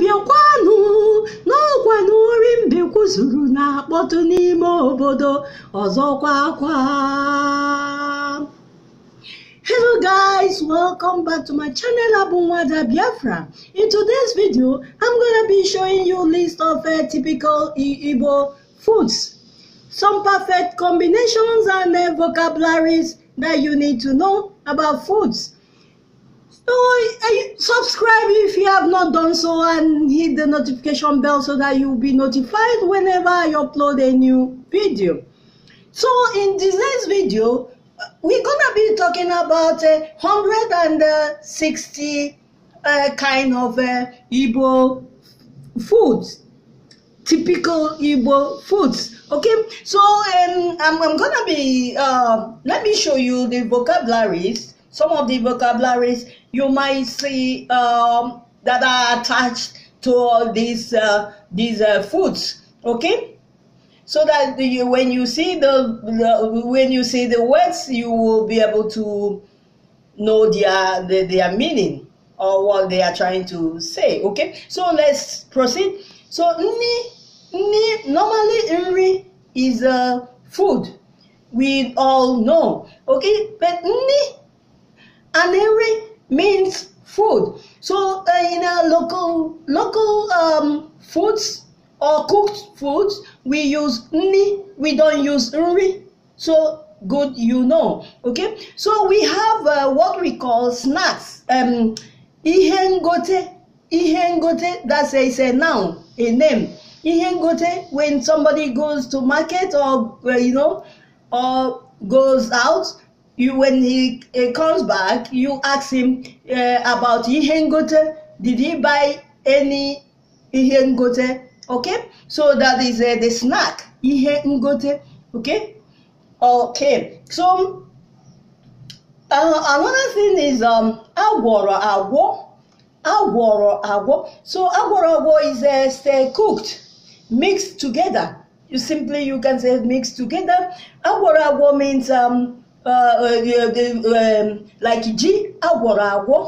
bịakwanụ n'ọkwa na ori mbekwu na-akpọtụ n'ime obodo ọzọkwa akwa hello guys welcome back to my channel abunwada biafra in today's video i'm gonna be showing you list of uh, typical igbo foods some perfect combinations and uh, vocabularies that you need to know about foods Oh, subscribe if you have not done so and hit the notification bell so that you'll be notified whenever I upload a new video. So in this next video, we're gonna be talking about uh, 160 uh, kind of uh, Igbo foods, typical Igbo foods. Okay, so um, I'm, I'm gonna be, uh, let me show you the vocabularies, some of the vocabularies you might see um, that are attached to all these uh, these uh, foods. Okay, so that you, when you see the, the, when you see the words, you will be able to know their their, their meaning or what they are trying to say. Okay, so let's proceed. So ni ni normally nri is a food. We all know. Okay, but ni and means food. So uh, in our local local um, foods or cooked foods, we use ni. We don't use ri. So good, you know. Okay. So we have uh, what we call snacks. Um, ihengote. Ihengote. That's a, it's a noun, a name. Ihengote. When somebody goes to market or uh, you know, or goes out you when he comes back, you ask him uh, about Ihengote. Did he buy any Ihengote? Okay, so that is uh, the snack Ihengote. Okay, okay. So uh, another thing is um agworo agwo agworo agwo. So agworo agwo is uh, stay uh, cooked, mixed together. You simply you can say mixed together. Agworo agwo means um Uh, uh, uh, um, like ji agwọrọ agwọ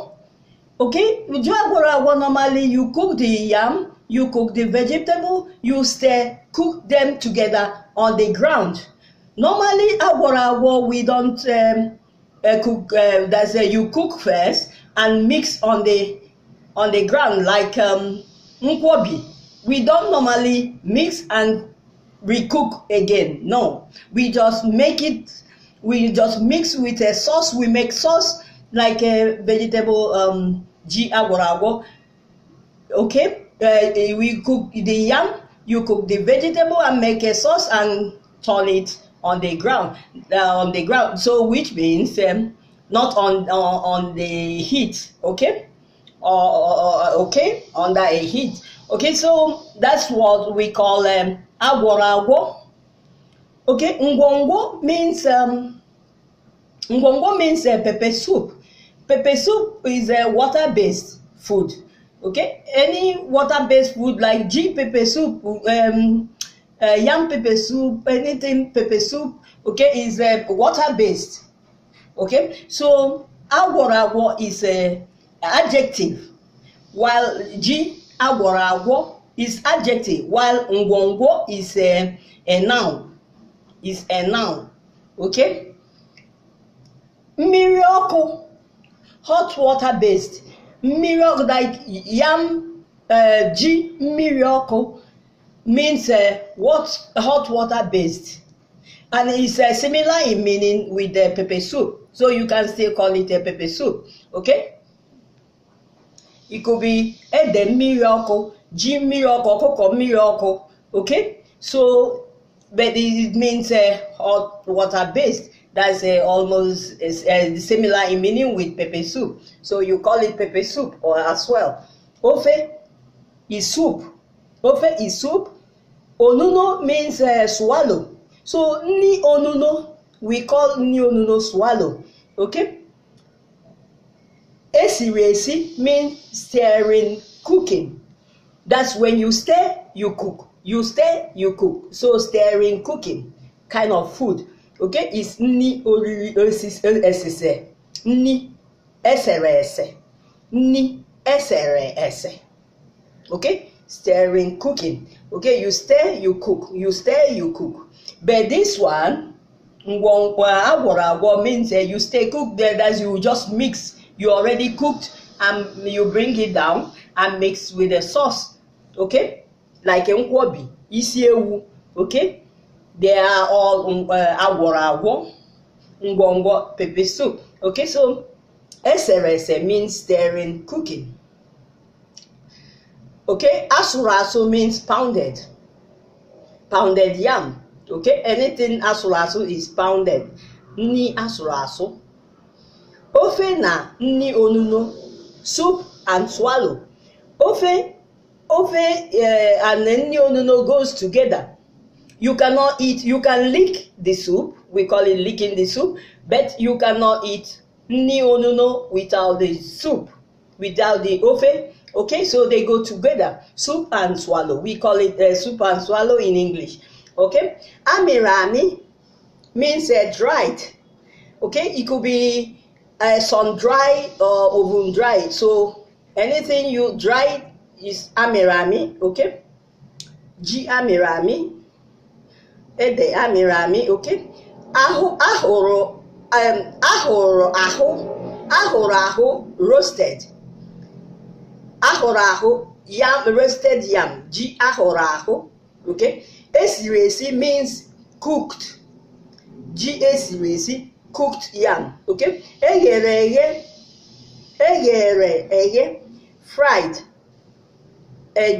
okay ji agwọrọ agwọ normally you cook the yam you cook the vegetable you stir cook them together on the ground normally agwọrọ agwọ we don't um, uh, cook uh, that's uh, you cook first and mix on the on the ground like um, we don't normally mix and cook again no we just make it we just mix with a sauce. We make sauce like a vegetable um ji jiagorago. Okay, uh, we cook the yam. You cook the vegetable and make a sauce and turn it on the ground. Uh, on the ground. So which means um, not on uh, on the heat. Okay, or okay under a heat. Okay, so that's what we call um, agorago Okay, ngwongwo means um, ngwongwo means uh, pepper soup. Pepper soup is a uh, water-based food. Okay, any water-based food like G pepper soup, um, uh, yam pepper soup, anything pepper soup. Okay, is uh, water-based. Okay, so agworawo is a uh, adjective, while G agworawo is adjective, while ngwongwo is a, uh, a noun. is a noun okay Miracle. hot water based Miracle, like yam uh, eh, G mmiri means uh, what hot water based and it's uh, similar in meaning with the pepper soup so you can still call it a pepper soup okay it could be ede mmiri ọkụ g mmiri ọkụ okay so but it means uh, hot water based. That's uh, almost uh, similar in meaning with pepper soup. So you call it pepper soup or as well. Ofe is soup. Ofe is soup. Onuno means uh, swallow. So ni onuno we call ni onuno swallow. Okay. Esiresi means stirring cooking. That's when you stir, you cook. you stay you cook so staring cooking kind of food okay is nni oriri esise nni esere ese nni esere ese okay staring cooking okay you stay you cook you stay you cook but this one ngwongwo agwọrọ agwọ means uh, you stay cook there that's you just mix you already cooked and you bring it down and mix with the sauce okay like nkwobi isi ewu okay they are all um, uh, agwọrọ agwọ ngwọngwọ pepper soup okay so eserese means stirring cooking okay asụrụ asụ means pounded pounded yam okay anything asụrụ asụ is pounded nni asụrụ asụ ofe na nni onuno soup and swallow ofe Ofe uh, and Nyonuno goes together. You cannot eat, you can lick the soup, we call it licking the soup, but you cannot eat Nyonuno without the soup, without the Ofe. Okay, so they go together, soup and swallow. We call it uh, soup and swallow in English. Okay, Amirami means uh, dried. Okay, it could be uh, sun dry or oven dried. So anything you dry is amịrị amị oke ji amịrị amị ede amịrị amị oke ahụ ahụrụ ahụrụ ahụ ahụrụ ahụ roasted ahụrụ ahụ yam roasted yam ji ahụrụ ahụ oke esiri esi means cooked ji esiri esi cooked yam oke eghere eghe eghere eghe fried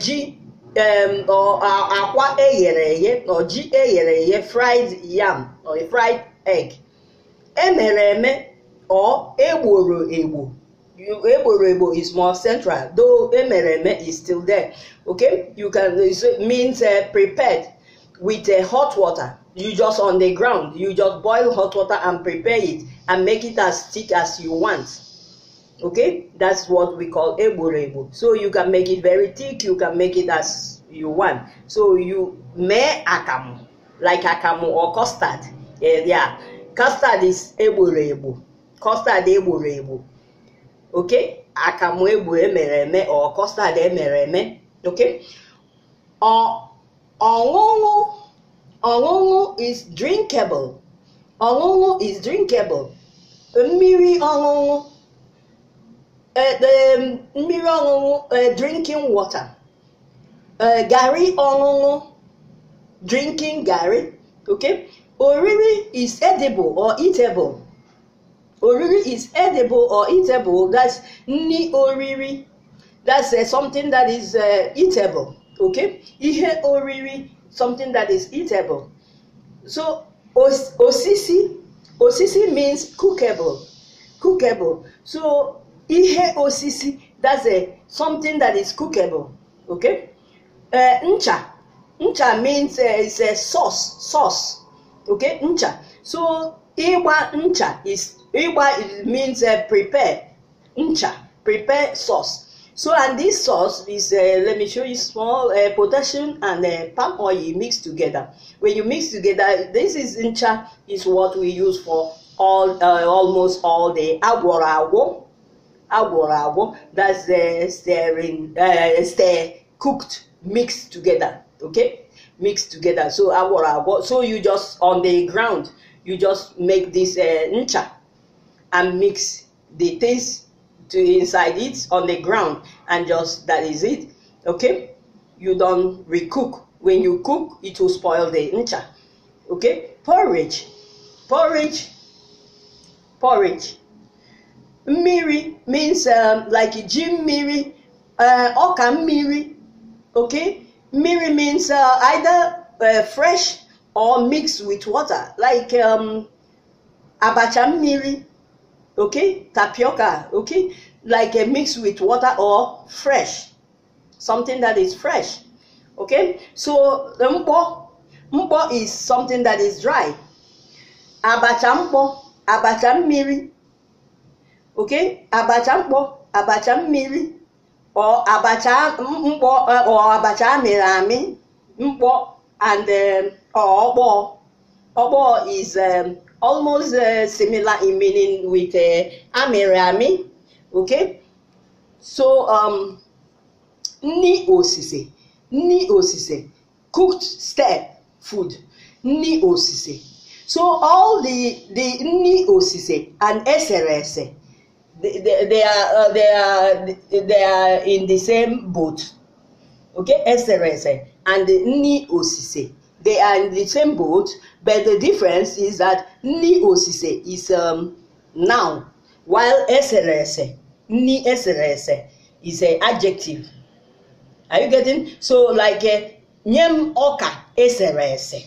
ji eh, akwa eghere eghe na ji eghere eghe fried yam or fried egg emere eme or egboro egbo egboro egbo is more central though emere eme is still there okay you can it means uh, prepared with uh, hot water you just on the ground you just boil hot water and prepare it and make it as thick as you want okay that's what we call eborebo so you can make it very thick you can make it as you want so you may akamu like akamu or custard yeah, yeah. custard is eborebo custard eborebo okay akamu egbu emere eme or custard emere eme okay or ọṅụṅụ ọṅụṅụ is drinkable ọṅụṅụ is drinkable mmiri ọṅụṅụ Eh, mmiri ọṅụṅụ eh, drinking water eh, garri ọṅụṅụ drinking garri okay oriri is edible or eatable oriri is edible or eatable that's nri oriri that's uh, something that is uh, eatable okay ihe oriri something that is eatable so osisi osisi means cookable cookable so ihe osisi that's a something that is cookable okay uh, ncha ncha means uh, a sauce sauce okay ncha so igba ncha is igba means uh, prepare ncha prepare sauce so and this sauce is uh, let me show you small uh, potassium and uh, palm oil mixed together when you mix together this is ncha is what we use for all uh, almost all the agwara agwo agwọrọ agwọ that's the stirring uh, stir cooked mixed together okay mixed together so agwọrọ agwọ so you just on the ground you just make this uh, ncha and mix the things to inside it on the ground and just that is it okay you don't recook when you cook it will spoil the ncha okay porridge porridge porridge Miri means um, like Jim mmiri uh, ọka miri, okay Miri means uh, either uh, fresh or mixed with water like um, abacha miri, okay tapioca okay like a mix with water or fresh something that is fresh okay so the mpo mpo is something that is dry abacha mpo abacha miri. okay abacha mkpọ abacha mmiri abacha mkpọ abacha amịrị amị mkpọ and um, ọkpọ ọkpọ is um, almost uh, similar in meaning with uh, amịrị amị okay so um, nni osise nni osise cooked step food nni osise so all the the nni osise and eserese they, they, they are uh, they are they are in the same boat okay excellency eh? and Ni osise they are in the same boat but the difference is that Ni osise is um, noun while excellency Ni excellency is an adjective are you getting so like uh, eh, ọka eserese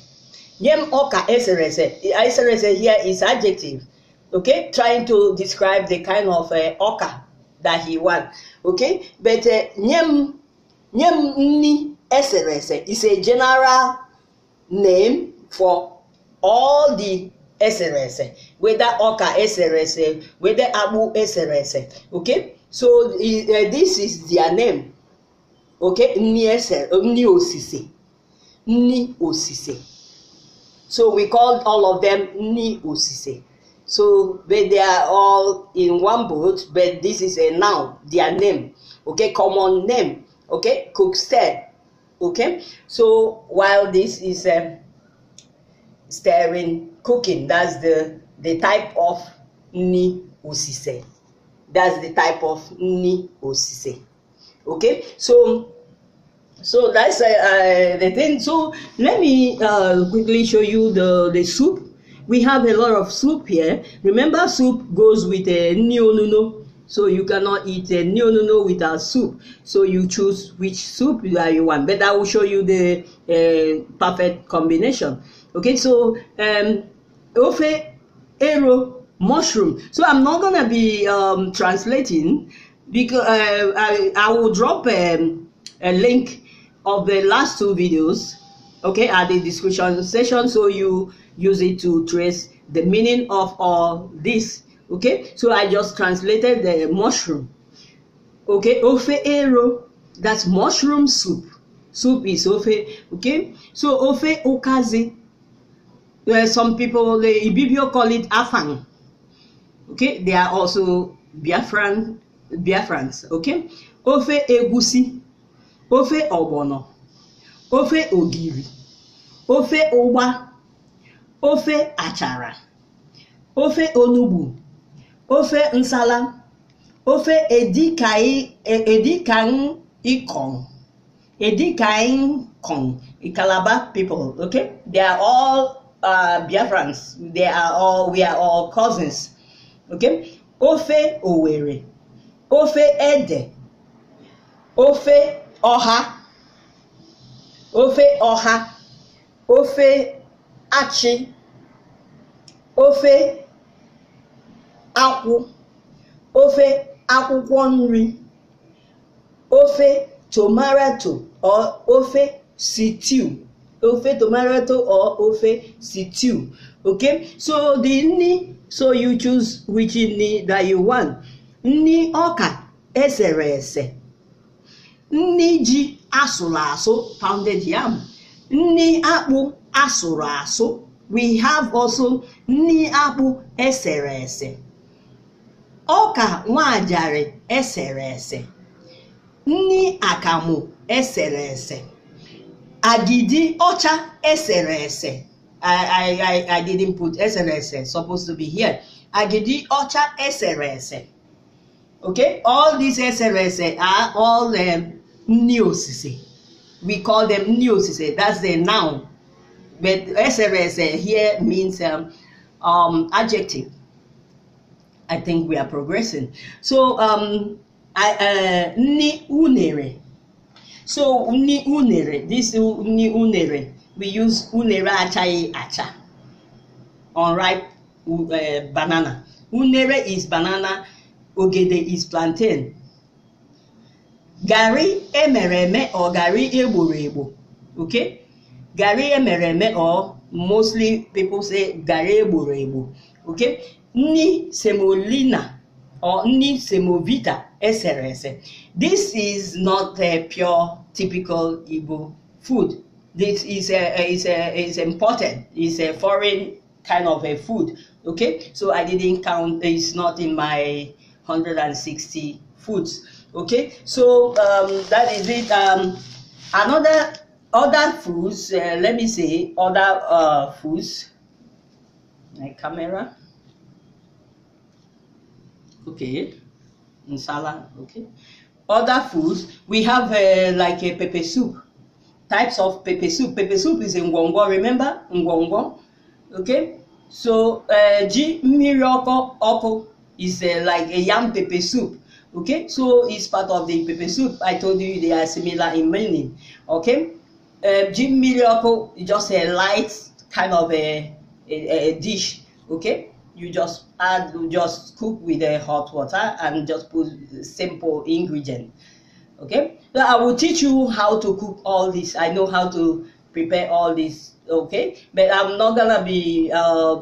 nye ọka eserese eserese eh? here is adjective okay, trying to describe the kind of uh, ọka that he won, okay, but nye m nye is a general name for all the srs, whether ọka srs, whether abu srs. okay so uh, this is their name okay ni ese osise ni osise so we called all of them ni osise. So but they are all in one boat, but this is a noun, their name. Okay, common name. Okay, Cookstead. Okay, so while this is a um, stirring cooking, that's the the type of ni osise. That's the type of ni osise. Okay, so so that's uh, uh, the thing. So let me uh, quickly show you the the soup we have a lot of soup here. Remember, soup goes with a nyonuno. So you cannot eat a nyonuno without soup. So you choose which soup that you want. But I will show you the uh, perfect combination. Okay, so um, ofe, ero, mushroom. So I'm not gonna be um, translating because uh, I, I will drop a um, a link of the last two videos okay at the description section so you use it to trace the meaning of all this okay so i just translated the mushroom okay ofe that's mushroom soup soup is ofe okay so ofe okazi well, eh, some people the eh, ibibio call it afang okay they are also biafran biafrans okay ofe egusi ofe obono ofe ogiri ofe ụgba ofe achara ofe onugbu ofe nsala ofe edikaikong edikaikong calabar people okay they are all uh, biafrans they are all we are all cousins okay ofe owere ofe ede ofe ọha ofe ọha ofe achị ofe akwụ ofe akwụkwọ nri ofe tomato or ofe stew ofe tomato or ofe stew okay so the nni so you choose which nni that you want nni ọka esere ese Ni ji asụrụ asụ pounded yam nni akpụ asụrụ asụ we have also nni akpụ esere ese ọka nwajarị esere ese nni akamụ esere ese agidi ọcha esere ese I, I, I didn't put SRS, supposed to be here. Agidi Ocha SRS. Okay, all these SRS are all um, neosise. We call them neosise. That's the noun. But SRS uh, here means um, um, adjective. I think we are progressing. So, um, I, uh, ni unere. So, ni unere. This ni unere. We use unere achai acha. Unripe uh, banana. Unere is banana. Ogede is plantain garri emere eme or garri egboro egbo okay garri emere eme or mostly people say garri egboro okay Ni semolina or ni semovita esere this is not a pure typical igbo food this is a is a is important is a foreign kind of a food okay so i didn't count it's not in my 160 foods okay so um, that is it um, another other foods uh, let me say other uh, foods my camera okay nsala okay other foods we have uh, like a pepper soup types of pepper soup pepper soup is in ngwongwo remember ngwongwo okay so uh, ji mmiri is uh, like a yam pepper soup okay so it's part of the pepper soup i told you they are similar in meaning okay uh, Jim miracle is just a light kind of a, a, a dish okay you just add you just cook with a hot water and just put simple ingredient okay so i will teach you how to cook all this i know how to prepare all this okay but i'm not gonna be uh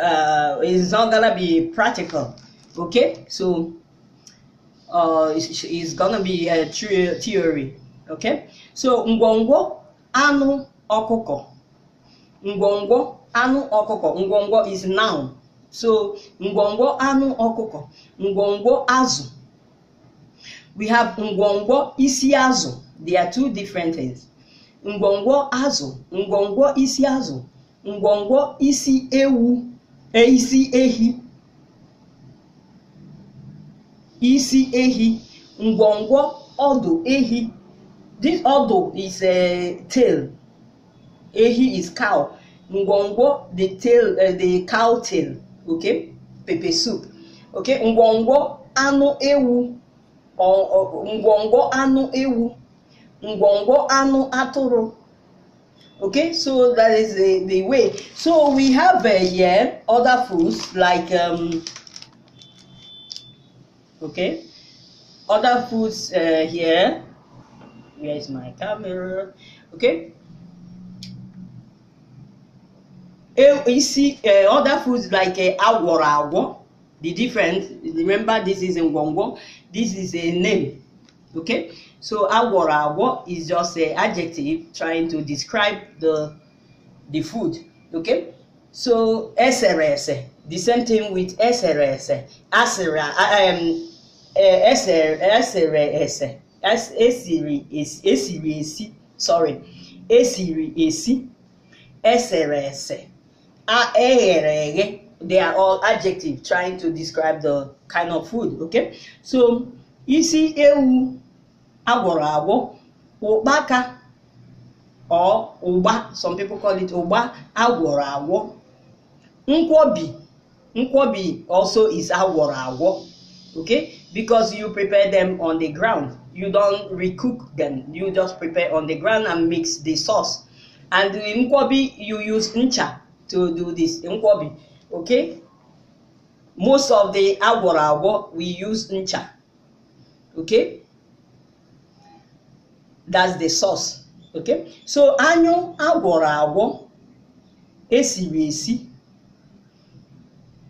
uh it's not gonna be practical okay so uh, is, is gonna be a theory. Okay? So ngwongwo anu okoko. Ngwongwo anu okoko. Ngwongwo is noun. So ngwongwo anu okoko. Ngwongwo azu. We have ngwongwo isi azu. They are two different things. Ngwongwo azu. Ngwongwo isi azu. Ngwongwo isi ewu. Eh, isi ehi. isi ehi ngwongwo ọdụ ehi this ọdụ is a tail ehi is cow ngwongwo the tail uh, the cow tail okay pepper soup okay ngwongwo anụ ewu ngwongwo anụ ewu ngwongwo anụ atụrụ okay so that is the, the way so we have uh, eh, here yeah, other foods like um, okay other foods uh, here where is my camera okay eh, you see uh, other foods like uh, eh, awara awo the difference remember this is in ngwongwo this is a name okay so awara awo is just an adjective trying to describe the the food okay so srs the same thing with srs asera um esere e e ese esiri e esi sorry esiri esi esere ese eghere eghe they are all adjectives trying to describe the kind of food okay so isi ewu agwọrọ agwọ ụkpaka or ụgba some people call it ụgba agwọrọ agwọ nkwobi nkwobi also is agwọrọ agwọ okay because you prepare them on the ground you don't recook them you just prepare on the ground and mix the sauce and in nkwobi you use ncha to do this nkwobi okay most of the agwọrọ we use ncha okay that's the sauce okay so anyụ agwọrọ esi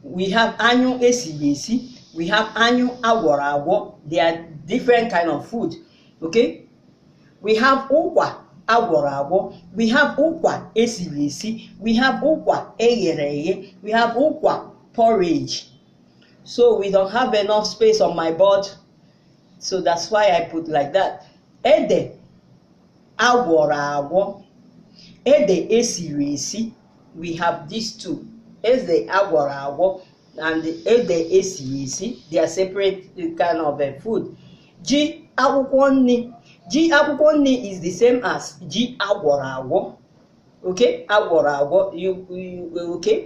we have anyụ esiri esi we have anu awara awo they are different kind of food okay we have ụkwa agwọrọ we have ụkwa esiri we have ụkwa eghere we have ụkwa porridge so we don't have enough space on my board so that's why i put like that ede agwọrọ agwọ ede esiri we have these two ede the agwọ and ede esighị esi they are separate kind of uh, food ji akwụkwọ nri ji akwụkwọ nri is the same as ji agwọrọ agwọ okay agwọrọ agwọ uh, okay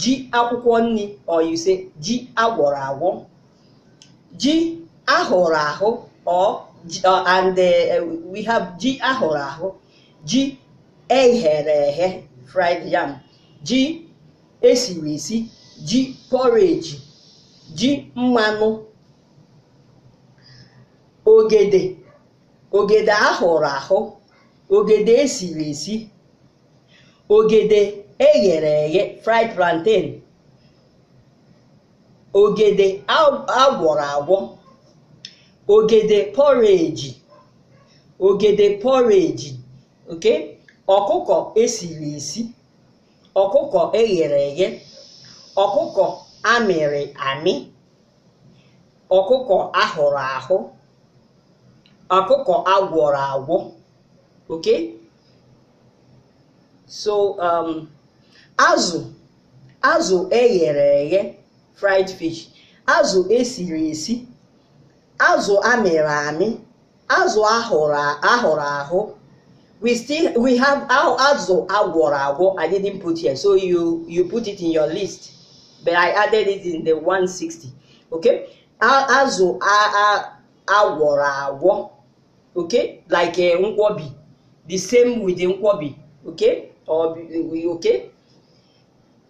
ji akwụkwọ nri or you say ji agwọrọ agwọ ji ahụrụ ahụ or uh, and we have ji ahụrụ ahụ ji eghere eghe fried yam ji esiri esi ji pọreji ji mmanụ ogede ogede ahụrụ ahụ ogede esiri esi ogede eghere eghe fried plantain ogede agwọrọ agwọ ogede pọreji ogede pọreji ok ọkụkọ esiri esi ọkụkọ eghere eghe ọkụkọ amịrị amị ọkụkọ ahụrụ ahụ ọkụkọ agwọrọ agwọ okay so um, azụ azụ eghere eghe fried fish azụ esiri esi azụ amịrị amị azụ ahụrụ ahụrụ ahụ we still we have azụ agwọrọ agwọ i didn't put here so you you put it in your list but I added it in the 160 okay azụ agwọrọ agwọ okay like eh, nkwobi the same with nkwobi okay okay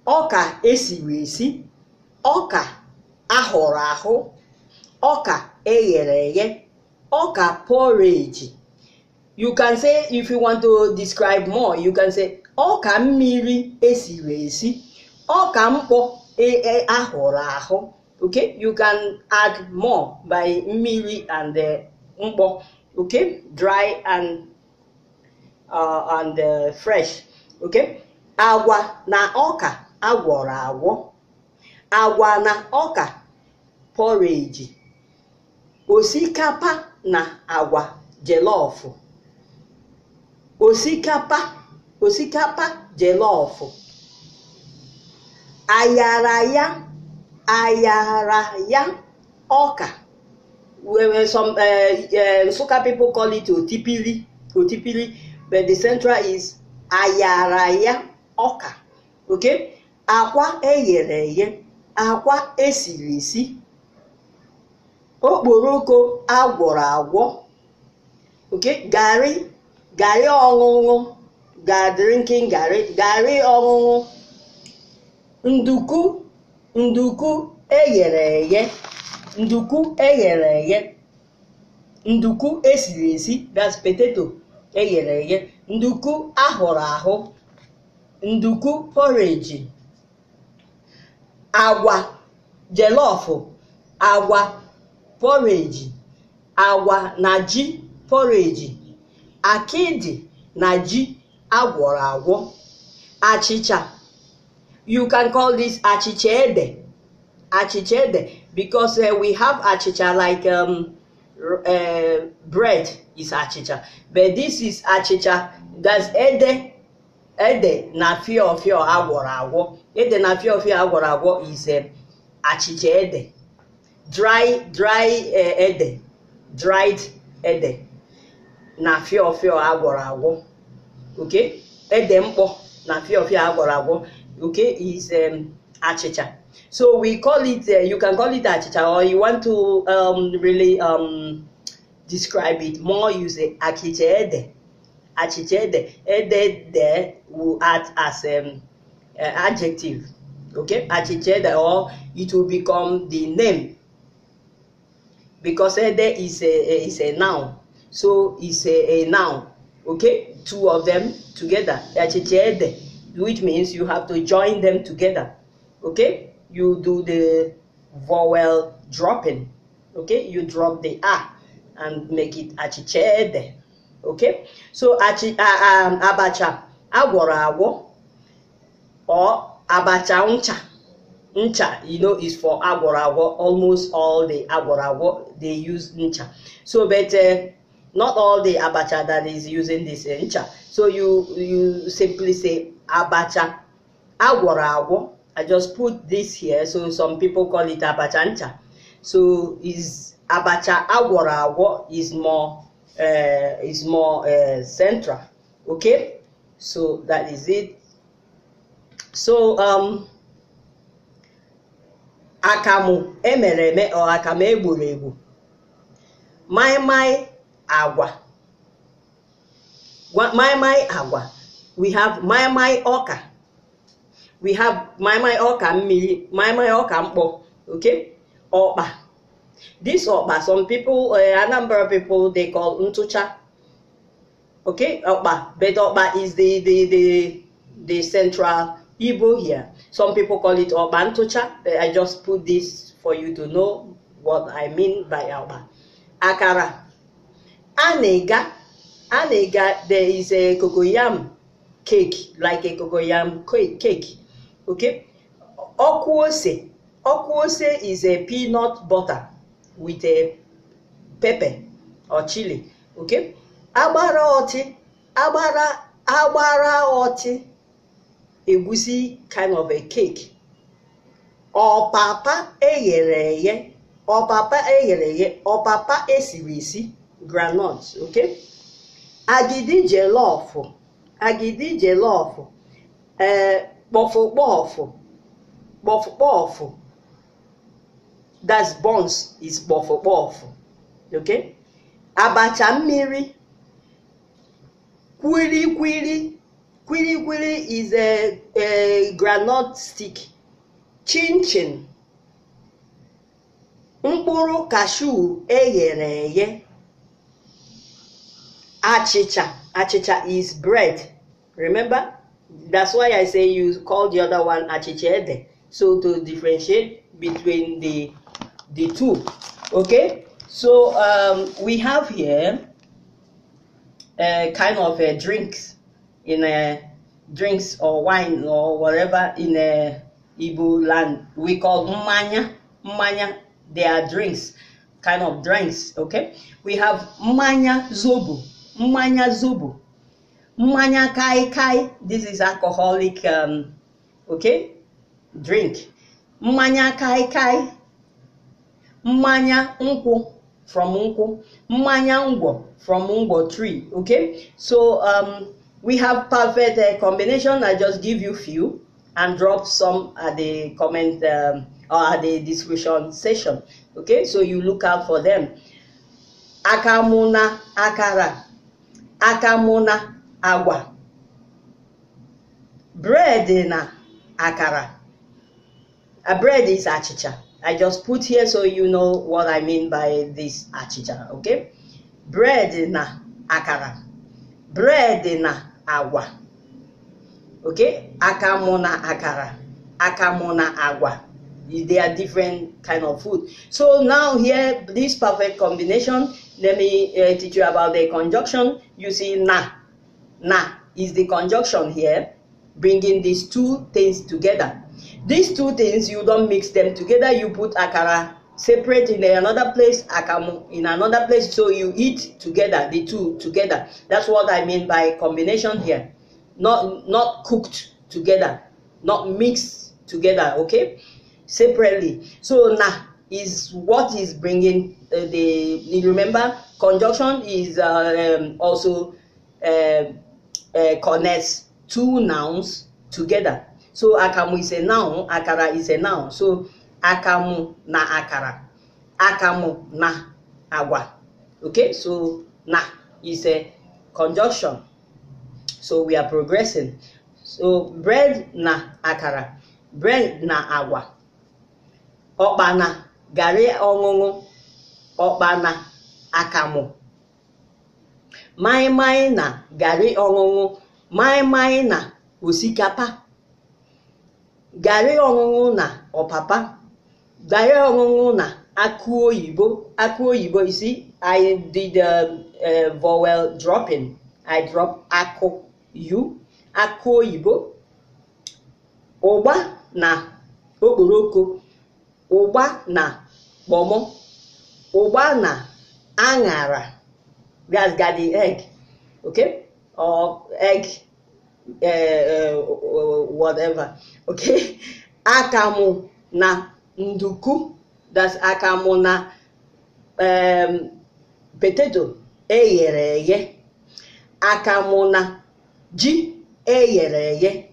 ọka esiri esi ọka ahọrọ ahụ ọka eghere eghe ọka porridge you can say if you want to describe more you can say ọka mmiri esiri esi ọka mkpọ ahụrụ ahụ okay you can add more by mmiri and mkpọ okay dry and uh, and uh, fresh okay agwa na ọka agwọrọ agwọ agwa na ọka porridge osikapa na agwa jelọfụ osikapa osikapa jelọfụ ayara ya ọka were some uh, pipo uh, call it otipili otipili but the central is ayara ya ọka ok akwa eyere eghe akwa esiri esi okporoko agwọrọ agwọ ok garị garị ọṅụṅụ ga drinking garị garị ọṅụṅụ nduku nduku eghere eghe nduku eghere eghe nduku esiri esi that's potato eghere eghe nduku ahụrụ ahụ nduku porridge agwa jelọfụ agwa porridge agwa na ji porridge akidi na ji agwọrọ agwọ achịcha You can call this achichede, achichede, because uh, we have achicha like um, uh, bread is achicha, but this is achicha. That's ede, ede na fio fio agwọrọ agwọ. Ede na fio fio agwọrọ agwọ is um, dry dry uh, ede, dried ede na fio fio agwọrọ agwọ. Okay, ede mpo na fio fio agwọrọ agwọ okay is um, achicha so we call it uh, you can call it achicha or you want to um, really um, describe it more you say achicha ede achicha ede ede de will act as um, uh, adjective okay achicha ede or it will become the name because ede is a, a is a noun so it's a, a noun okay two of them together achicha ede which means you have to join them together. Okay, you do the vowel dropping. Okay, you drop the a and make it achichede. Okay, so achi, uh, um, abacha agora agwo or abacha uncha uncha. you know, is for agora agwo. Almost all the agora agwo they use uncha. So, but uh, not all the abacha that is using this uncha. Uh, so you you simply say abacha agwọrọ agwọ i just put this here so some people call it abacha ncha so is abacha agwọrọ agwọ is more uh, is more uh, central okay so that is it so um, akamụ emere eme ọ akamụ egburu egbu maịmaị agwa maịmaị agwa we have mai mai ọka we have mai mai ọka mmiri mai ọka okay Oba. this ọkpa some people uh, eh, a number of people they call ntụcha okay Oba. but ọkpa is the the the the central Igbo here some people call it ọkpa ntụcha eh, I just put this for you to know what I mean by Oba. akara anega anega there is a cocoyam cake like cocoyam cake okay okwuose okwuose is a peanut butter with a pepper or chili okay agbara ọtị agbara agbara ọtị egusi kind of a cake ọpapa eghere eghe ọpapa eghere eghe ọpapa esiri esi groundnut okay agidi jollof agidi jelọfụ ee kpọfụkpọfụ kpọfụkpọfụ that's buns is kpọfụkpọfụ Ok? abacha mmiri kwilikwili kwilikwili is a, a groundnut stick chinchin mkpụrụ kashu eghere eghe achicha. Achicha is bread. Remember? That's why I say you call the other one achichede. So to differentiate between the the two. Okay? So um, we have here a uh, kind of a uh, drinks in a uh, drinks or wine or whatever in a Igbo land. We call manya manya. They are drinks, kind of drinks. Okay, we have manya zobo mmanya zubu mmanya kai kai this is alcoholic um, okay drink mmanya kai kai mmanya nkwụ from nkwụ mmanya ngwọ from ngwọ tree okay so um, we have perfect uh, combination i just give you few and drop some at the comment um, or at the description section okay so you look out for them akamuna akara akamụ na agwa bread na akara a bread is achicha i just put here so you know what i mean by this achicha okay bread na akara bread na agwa okay akamụ na akara akamụ na agwa they are different kind of food so now here this perfect combination let me uh, teach you about the conjunction. You see, na. Na is the conjunction here, bringing these two things together. These two things, you don't mix them together. You put akara separate in another place, akamu in another place. So you eat together, the two together. That's what I mean by combination here. Not, not cooked together, not mixed together, okay? Separately. So na is what is bringing Uh, the, the remember conjunction is uh, um, also uh, uh, connects two nouns together so akamu is a noun akara is a noun so akamu na akara akamu na agwa okay so na is a conjunction so we are progressing so bread na akara bread na agwa ọkpa na garri ọṅụṅụ na akamụ maịmaị na garị ọṅụṅụ maịmaị na osikapa garị ọṅụṅụ na ọpapa garị ọṅụṅụ na akụ oyibo akụ oyibo isi I did a, um, um, vowel dropping I drop akụ u akụ oyibo ụgba na okporoko ụgba na kpọmọ Cubana, Angara. That's got the egg, okay? Or egg, uh, uh, whatever, okay? Akamu na nduku, that's akamu na um, potato, eyere Akamu na ji, eyereye,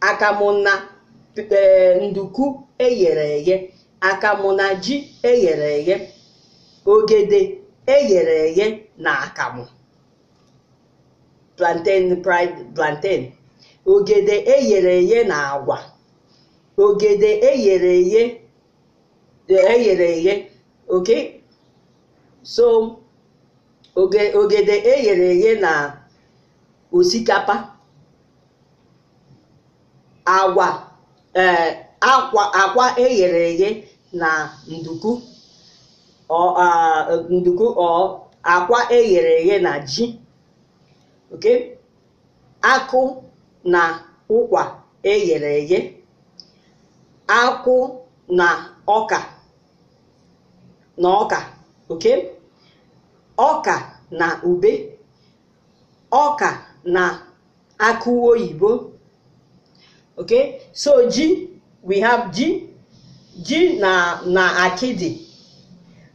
Akamu na eh, nduku eyereye, Akamu na ji eyereye. ogede eghere eghe na akamụ plantain fried plantain ogede eghere eghe na agwa ogede eghere eghe eghere eghe ok? so ogede eghere eghe na osikapa agwa eh, akwa akwa eghere eghe na nduku nduku akwa eghere eghe na ji ok akụ na ụkwa eghere eghe akwụ na ọka na ọka oke ọka na ube ọka na akụ oyibo ok so ji we have ji ji na na akidi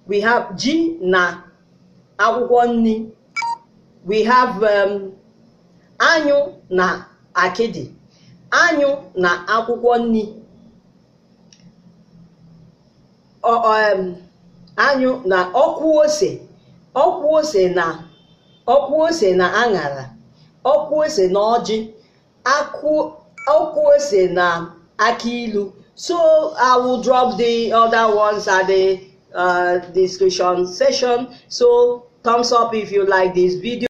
we have ji na akwụkwọ nri we have um, anyụ na akịdị anyụ na akwụkwọ nri um, anyụ na okwu ose okwu ose na ọkwụ ose na aṅara ọkwụ ose na ọjị ọkwụ ose na aki ilu so i will drop the other ones at the uh, discussion session so thumbs up if you like this video